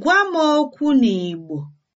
Gwa m okwu n'Igbo